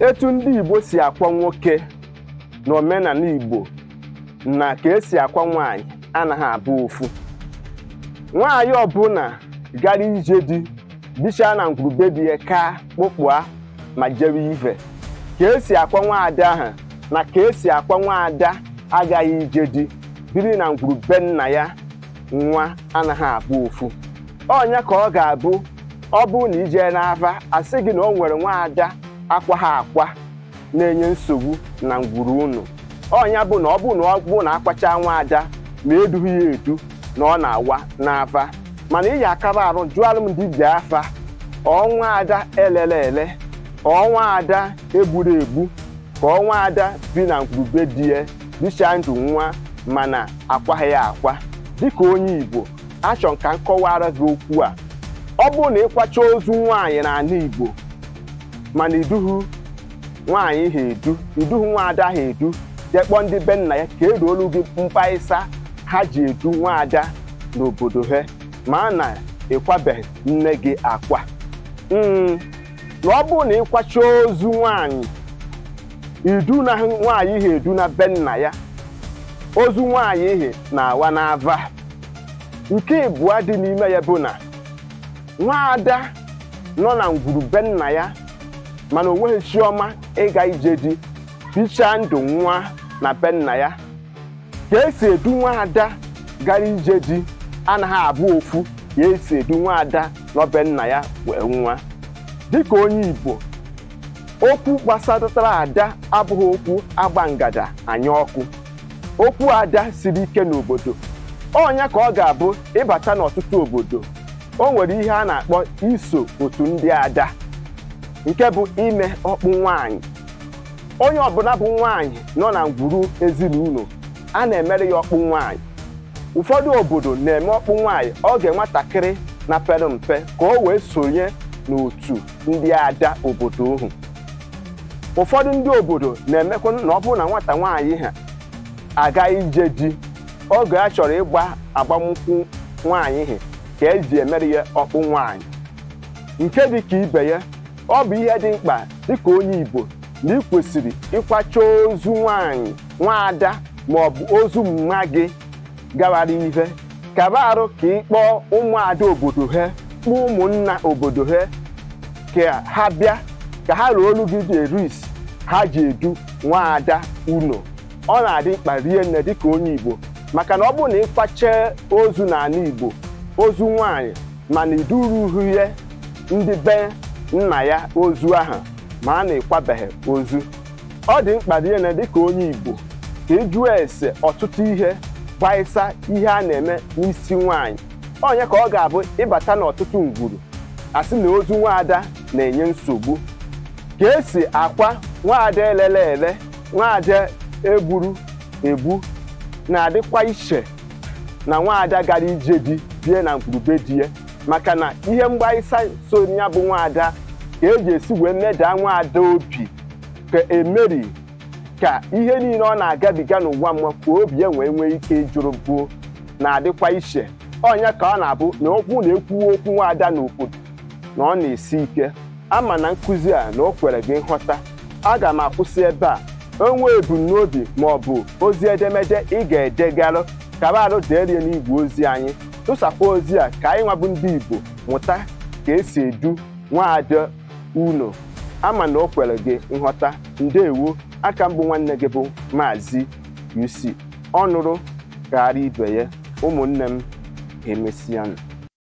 etu ndị Igbo si akwa nwoke na omenala Igbo na ka esi akwa nwanyị anaghị abụ ofu nwaanyị ọbụla gara ije di bichaa na ngwurube ya ka kpụkpụa ma jewe ive ka esi akwa nwaada ahụ na ka esi akwa nwaada agaghị ije di biri na ngwurube nna ya nwa anaghị abụ ofu ọnya ka ọ ga-abụ ọ bụrụ na ije n'ava asị gị na o nwere nwaada akwa ha akwa na-enye nsogbu na ngwuru unu ọnya bụ na ọ bụ na ọ bụ na akwacha nwa ada ma edughi ya edu na ọ na-awa n'afa mana iyi akaba arụ jụọ alụmdi dibịa afa ọnwa ada elele ele ọnwa ada egburu egbu ka ọnwa ada bi na ngwurube di ya dịcha ndụ nwa mana akwaghị ya akwa dịka onye Igbo achọ ka m kọwara gị okwu a ọ bụ na ịkwacha ozu nwaanyị n'ala Igbo mana iduhu nwaanyị ha edu iduhu nwaada ha edu jee kpọọ ndị be ya ka eruolu gị mkpaịsa ha ji edu nwaada n'obodo ha ma na ịkwabeghị nne gị akwa hmm, na ọ bụrụ na ịkwacha ozu nwaanyị idu na nwaanyị ha edu na be nna ya ozu nwaanyị ihe na-awa n'ava nke ịbụọ dị n'ime ya bụ na nwaada nọ na ngwuru be ya mana o chioma ịga ije di bichaa ndụ nwa na be ya ka esi edu nwa ada gara ije di anaghị abụ ofu ka esi edu nwa ada n'obe nna ya wee nwa dịka onye Igbo okwu gbasatara ada abụghị okwu agba ngada anya ọkụ okwu ada siri ike n'obodo ọnya ka ọ ga-abụ ịbata n'ọtụtụ obodo o nwere ihe a na-akpọ iso otu ndị ada nke bụ ime ọkpụ nwaanyị onye ọbụla bụ nwaanyị nọ na ngwuru ezinụlọ a na-emere ya ọkpụ nwaanyị ụfọdụ obodo na-eme ọkpụ nwaanyị oge nwatakịrị na pere mpe ka o wee sonye n'otu ndị ada obodo ohu ụfọdụ ndị obodo na-emekwa na ọ bụrụ na nwata nwaanyị ha aga ije di oge a chọrọ ịgba agbamnkwụ nwaanyị ha ka eji emere ya ọkpụ nwaanyị nke dị ka ibe ya ọ bụ ihe dị mkpa dịka onye Igbo na ị kwesịrị ịkwacha ozu nwanyị nwaada maọbụ ozu mma gị gawara ihe kaba arụ ka ị kpọọ ụmụada obodo ha kpọọ ụmụnna obodo ha ka ha bịa ka ha ruo olu gị dị eru ha ji edu nwaada unu ọ na-adị mkpa rie nne dịka onye Igbo maka na ọ bụrụ na ịkwacha ozu n'ala Igbo ozu nwanyị mana idurughị ihe ndị be nna ya ozu aha ma a na-ekwabeghị ozu ọ dị mkpa dịene dịka onye Igbo ka ịjụọ e ese ọtụtụ ihe gbaịsa ihe a na-eme n'isi nwaanyị onye ka ọ ga-abụ ịbata n'ọtụtụ ngwuru asị na ozu nwaada na-enye nsogbu ka esi akwa nwaada elele ele nwaada egburu egbu na-adịkwa iche na nwaada gara ije di bie na ngwurube di ya maka na ihe mgbaisa so ya bụ nwaada ka eji esi wee medaa nwaada obi ka emeri ka ihe niile ọ na-agabiga n'ụwa mma ka obi ya wee nwee ike jụrụ buo na-adịkwa iche ọnya ka ọ na-abụ na okwu na-ekwuwe okwu nwaada n'obodo na ọ na-esi ike ama na nkụzi a na o kwere gị nghọta aga m akwụsị ebe a onwe ebumnobi ma ọ bụ ozi edemede ị ga-edegarụ kabarụ deerie n'igwe ozi anyị tụsakwa ozi a ka anyị nwabụ ndị Igbo mụta ka esi edu nwaada uno ama na o kwere gị nghọta ndewo aka mbụ nwanne gị bụ Maazị UC ọ nụrụ karịa ibe ya ụmụnne m emesianụ